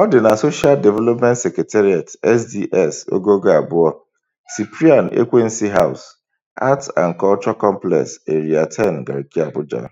Ọ dị na Social Development Secretariat (SDS) Ogogo abụọ, Cyprian Ekwensu House, Arts and Culture Complex, Area 10, Garki, Abuja.